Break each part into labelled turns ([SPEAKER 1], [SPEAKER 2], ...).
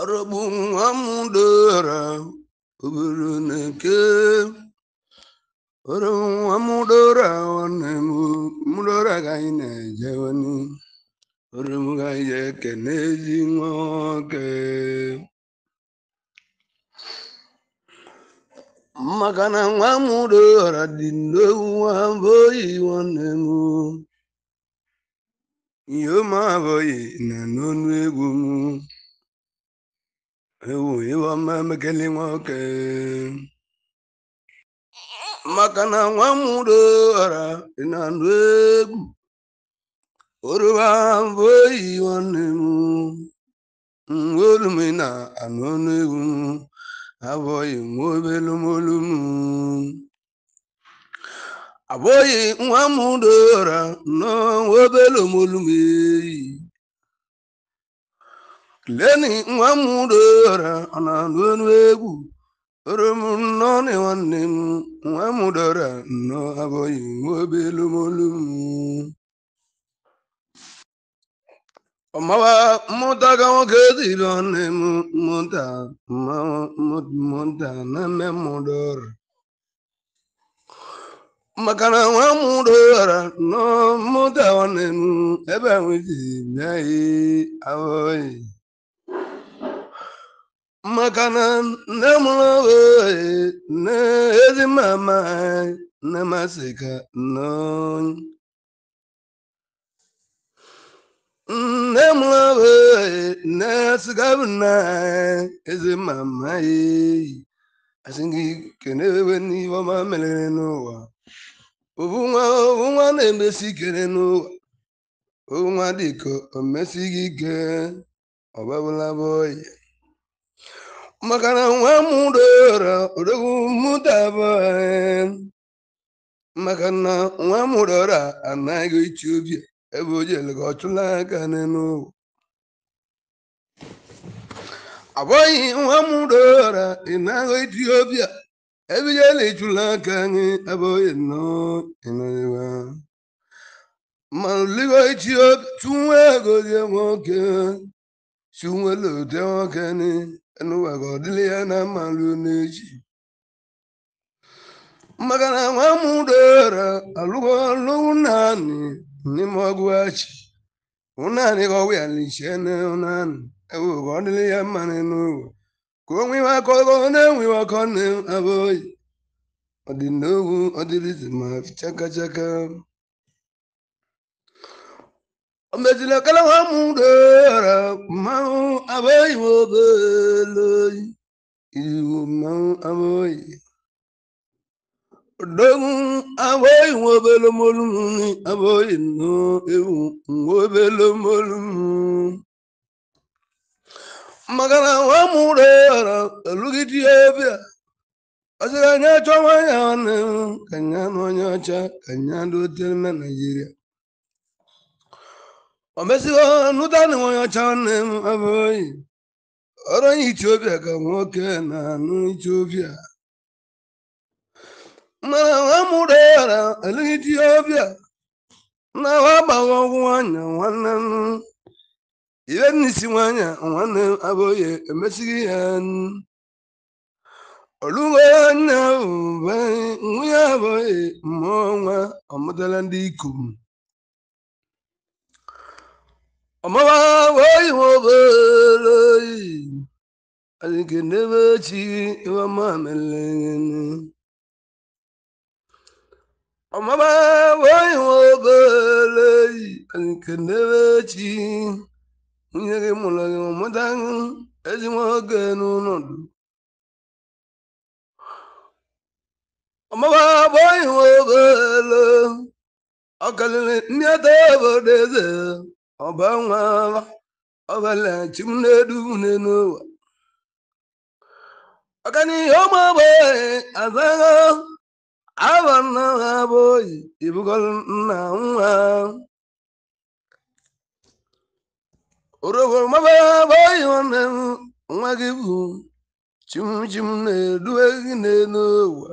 [SPEAKER 1] Arabu nwa m dora obere na-eke ọrụ nwa m dora nwanne m mdora gaghị na-ejewani ọrụ m gaghị eke n'ezi nwa na nwa m ewu iwe ọma emekeli nwoke maka na nwa mụrụ ọra ị na ndụ egwu oruba mbụ oyi nwanne m mgbe na anụ ọnụ egwu abụghị nwa obelu molu m abụghị nwa mụrụ ọra nọ nwa obelu molu m eyi leni nwa m dora ọ na-anụ ọnụ egwu orom nnọọ nwanne m nwa m dora nnọọ abụghị nwa obelumolu m mmụta ka nwoke dịrị ọnụ m mmụta mmụta na mmemụdọra maka na nwa m dora mmụta nwanne m ebe a nwezi bịa ahụghị maka na nne mụrụ nne ezi mama nne masị ka nne mụrụ nne sigabụ na ezi mama asị gị kenewe n'ihe ọma merere n'ụwa obu nwa obu nwa na-emesi ikere n'ụwa obu nwa dịka omesighị ike ọbabụla bụ ọya maka na nwa mụrụra mụtaba maka na nwa mụrụra anaghị ichi obi ebe o jere ka ọ chụla aka n'ụwa ọ bụghị nwa mụrụra ịnaghị ichi obi ebe jere ịchụla aka anyị ebe oye nọịnọwa ma ligo ichi obi tụnwe egozie nwoke tụnwele ụdị nwoke n'ụwa ka ọdịlị ya na mma ruo n'echi maka na nwa m dara naanị n'ime ọgụ achị ụnaanị ka ọwụ ya lichie n'ụnaanị ewu ka ọ dịrị ya mma n'ụwa ka o nwewe aka ọ na-enwewe aka ọ na-abụghị ọdịnowu ọdịrịzi ma chaka chaka omezila kala ha mụ dara mmanwụ abụghị iwu mmanwụ abụghị odogwu abụghị m obele molumuni maka na nwa ya dara alụgide ebe anya ya nwanne m ka nya na onye ọcha ka nya na naijiria o mezigo na nwanyị ọcha nwanne m abụghị ọrụ onye etiopia ka nwoke na-anụ etiopia mana nwa mụrụ yara eleghị etiopia na wa agbaghị ọgwụ nwanyị nwanne m ibe n'isi nwanyị nwanne m abụghị emesighị ya olugo anya bụ nwunye abụghị mmụọ nwa ọmụtala ndị ikom ọmụwa ihe obere oyi adịghị n'ebe chi iwe mamele ọmụwa ihe obere oyi adịghị n'ebe nwunye gị mụrụ gị ezigbo oge ihe ọ obodo eze ọbanwe ọbalachi m na-edu une n'ụwa ọganihu ụmụ ogbenye azagha abụ nna ha bụ oyi ibugo nna nwa orogo maba bụ oyi nwanne m nwa gị bụ chimchim na-eduwe gị n'elu ụwa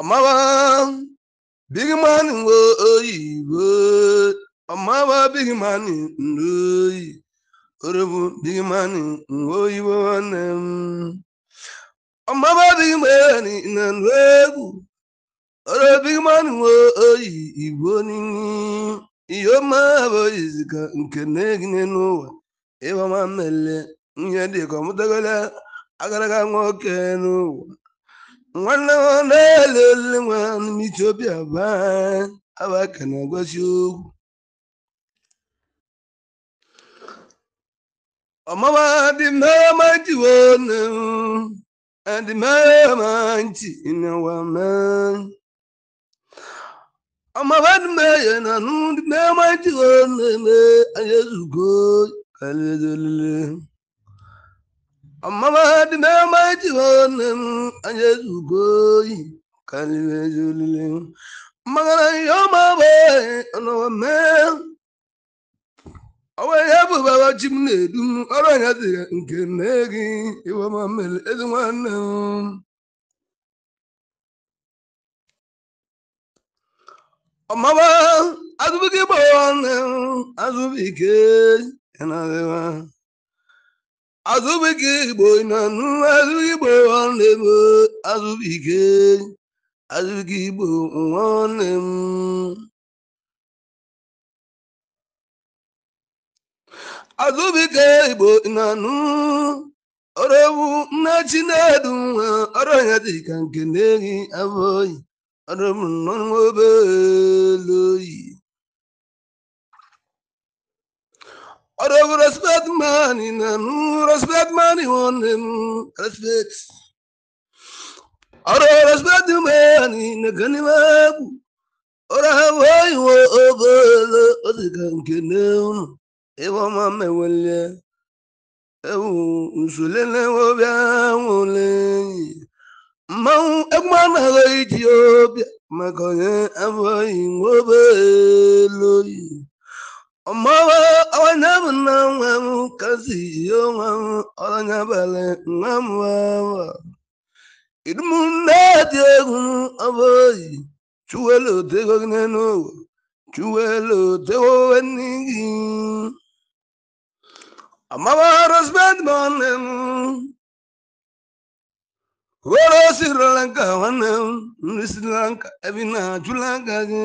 [SPEAKER 1] Amaba big man oyibo amaba big man oyi orobu big man oyibo nwanne m Ọmaba big man na egwu oro big man oyi igbo nini ihe ọma bụ iziga nke na-egine n'ụwa ịgbama mmele ihe dịka ọmụtagala agaraga nwoke n'ụwa nwanne m na-ele olile nwa n'ime Etiopia bụ abaka na-agwazi okwu ọmama dị mma jiwo nne m dị mma nti n'ụwa m Ọmụma dị mma ya na nụ dị mma jiwo nne m anyị ezugo karịa olile ọmụma dị n'ama ejighi nne m anya ezugo oyi karịrị ezi olile mmagara ihe ọma bụ ọnọwa mee ọwa ihe bụ baba ji m na-edu ọrụ anya dịrị nke nne gị iwe ma mere ezi nwanne m ọmụma azụbụghị gbawa nne m azụbụ ike ya azụbike igbo na azụ igbo nwanne m azụbike azụbike igbo nwanne m azụbike igbo na anụ ọrọbu nna chinedu nwa ọrụ ya dịka nke na-ehi abụọ oyi ọrọbu nnọọ obere oyi Ọrụ respect mani nanu um, respect mani one um, respect. Oro respect mani ọrụ mabu. Ora hawai wo obolo oh, odiganke oh, neunu. Ewa mame wele. Ewu usulele wo bia wole. Mmanwụ egwumana ha iji ọbịa maka onye afọ e yi ọmọwé ọwọnyẹmú náà wẹmú kásì yóò wẹmú ọlọnyẹbẹlẹ wẹmú wẹmú ìdúmú náà ti egun gị yìí chuwelo tego nínú òwò chuwelo tego nígi ọmọwé nri sri gị.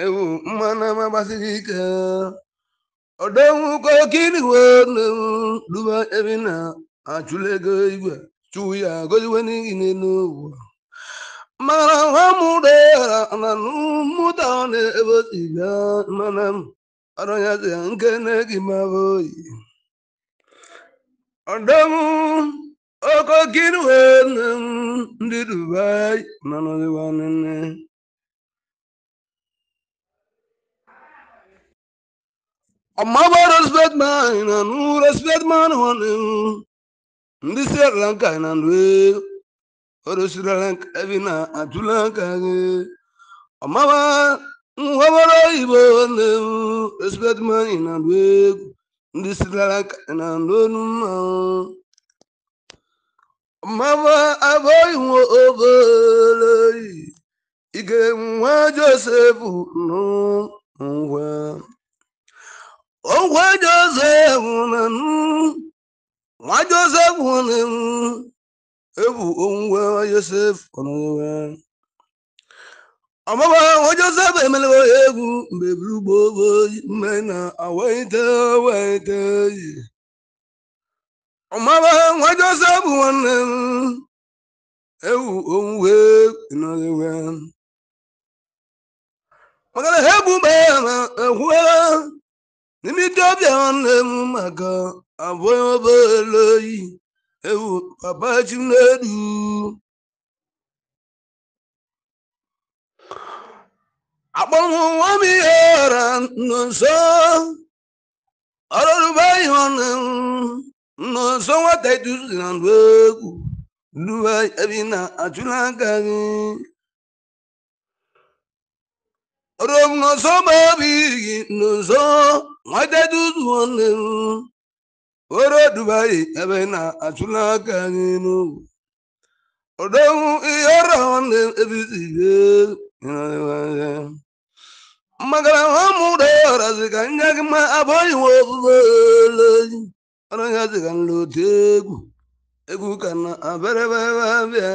[SPEAKER 1] ewu mmanụ ama gbasiri ike ọdọnwu kokiriwe nnewu duba ebe na achụlego igwe chụwu ya goziwe n'ihi n'elu ụwa mara nwa mụrụ na mụta ọ na-ebe tibia mana ọrọnyazi ya nke na-egi maba oyi ọdọnwu okokiriwe nnewu ndị dubai mana ọdịwa nne amma baros bedman e. na nuras bedman hone ndi serran ka na ndwe oro sirran ka na atulan gị. Ọmaba amma ba nwabaro ibo ne res na ndwe ndị si ka na ndonu e ma amma ba aboy wo obeloi ige nwa joseph no nwa onwe Josef nwa Josef ebu onwe Josef ọmụma nwa Josef emelewe ya egwu mgbe buru gboo mme na awaite waite ọmụma nwa Josef nwanne m ewu
[SPEAKER 2] onwe nọrewe maka na ha egbu mgbe
[SPEAKER 1] ya na egwu n'imido ọbịa na-emu maka abụ obere oyi ewu papa n'elu
[SPEAKER 2] akpọnwụnwa m ihe
[SPEAKER 1] ghara nọ ọrụ ọrụrụba ihe ọnụ nọ nwata iduzi na ndụ egwu duba ebi na achụla aka gị rom n'ụzọ ma obi gị n'ụzọ nweta duzuo n'ihu ị ebe na-achụla aka anyị n'ugwu odogwu ihe ọrụ nwanne ebizige magara ha mụrụ ọrazi ka nye gị ma abụghị nwe ọrụ ya egwu egwu ka na abịarịbịa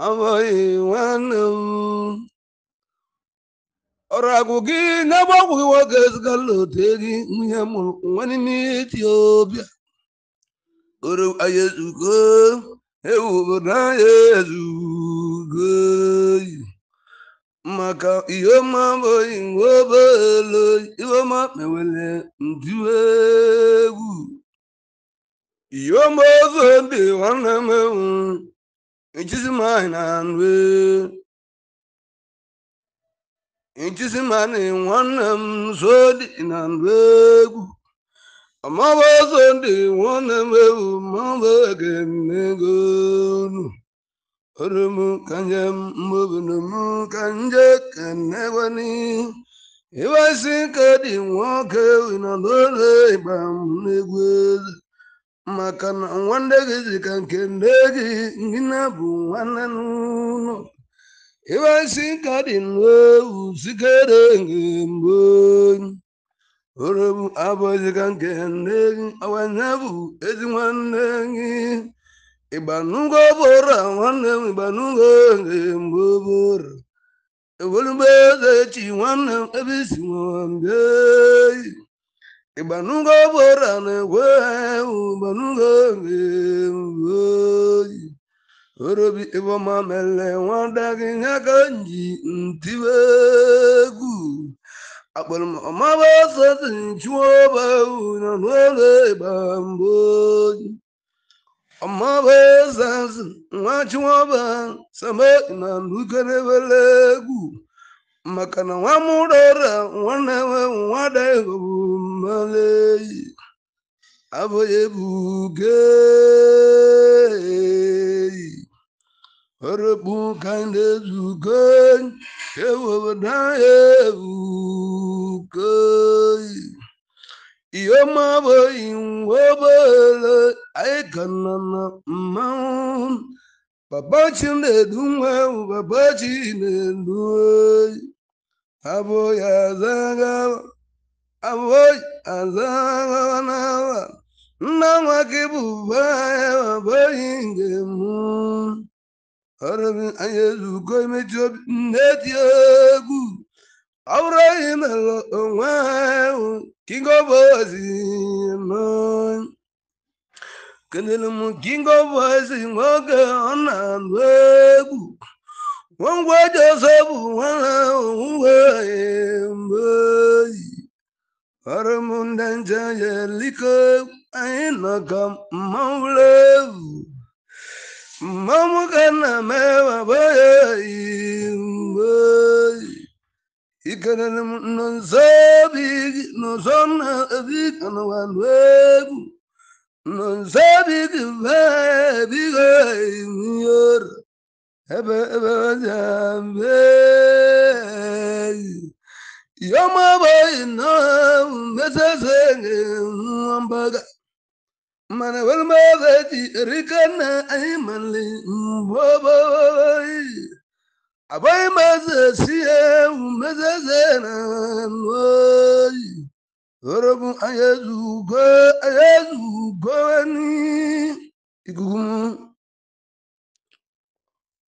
[SPEAKER 1] amaghị nwanne m ọrụ agwụ gị n'ebe ọgwụ gị nwoke ezigala otu gị nwunye mụrụ nwa n'ime etiopia oru anyị ezugo ewu obodo anyị ezugo maka ihe ọma abụghị nwa obelo ihe ọma mewere nju egwu ihe ọma ozo ndị nwanne m enwere ijizimani na nri ijizimani nwanne m nso dị na nri egwu ọmọba ọzọ ndị nwanne m ewu mọba ga-emego nu orom kanje mmobinom kanje kenegwani iwesi ka dị nwoke ewu na n'ụlọ ịgba maka na nwanne gị dị ka nke nne gị gị na nwanne n'ụlọ iwe si ka dị n'ewu sikere mgbe oro m abụghị ka nke nne gị ọwanye bụ ezi nwanne gị ịgbanugo bụra nwanne m ịgbanugo mgbe bụra ewolugbo eze echi nwanne m ebe isi nwambie ịgbanugo bụra na-egwe ụgbanugo eoyi orobi ịbọma mere nwada gị ya ka nji m egwu akpọrọmọmaba sọsi chụọ ọba na n'oge ịgba mbụ oyi ọmaba sọsi nwa chụọba sama na nukerebere egwu maka na nwa mụrọra nwa nwe nwada egwu maleyi aboye bugeyi orobu kande zugeyi ewobadaye bugeyi iyoma boyi nwobele anyị kana na mmanwụ papa chinedu nwa papa chinedu oyi aboya zagaba aboi azaganawa nna nwa gị bụ ube anya abụghị nke m ọrụbi anya ezugo imechi obi nne egwu ọ bụrụ anyị mere onwe ahụ king of ozi kelere m king of ozi nwoke ọ na-anụ egwu ngwa ji ọzọ bụ nwa na onwuwe mgbe oyi ndị nje jeliko anyị nọkọ mmanwụ ewu mmanwụ ka nna mewabayayiikenere nọnzobi gị n'ụzọ nna obi kanụwanụ egwu nọnzobi gị bebigo yimiyoro ebe ebe jambeyi yomaboyi na mesese ngambaga mana walmaza ti rikana aimali mboboyi abai maza siye mesese na noyi orobu ayazugo ayazugo ni igumu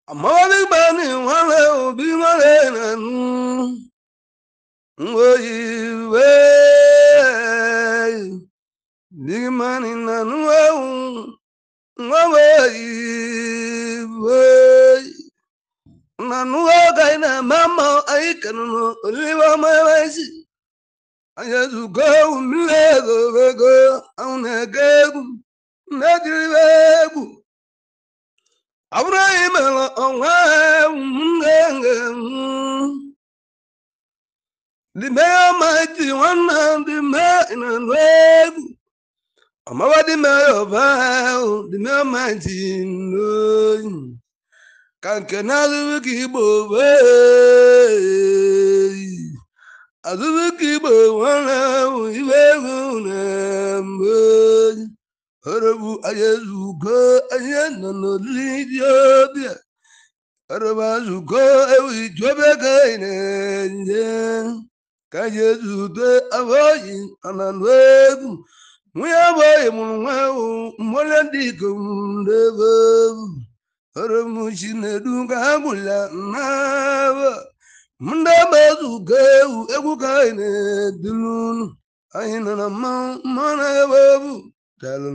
[SPEAKER 1] amawali bani wale obi wale na nu oyiwe digmani na nuwewu nwaweyiwe na nuwe gai na mama anyị kanụnụ oliwe ọmawaisi anyị ezugo ewu mmiri ego ego ahụ na-ege egwu na-ejiriwe egwu ọ bụrụ anyị mere ọnwa ewu m na the mayor mighty one and the man and wave. I'm over the mayor of hell, the mayor mighty known. Can can I keep away? I do keep one hour, you ever Harabu ayazuko ayana no lidio dia. ewi ine. ka ji eji ude abụghị ananụ egwu nwunye abụghị mụrụ nwa ewu mgbole ndị ikom n'ebe egwu oromuchi na-edu ka ha gwụla n'aba ndị agba ezu ewu egwu ka anyị na-eduru anyị nọ na
[SPEAKER 2] mmanwụ mmanwụ na-ebe egwu
[SPEAKER 1] dalụ